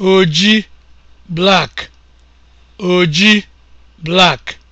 oji black oji black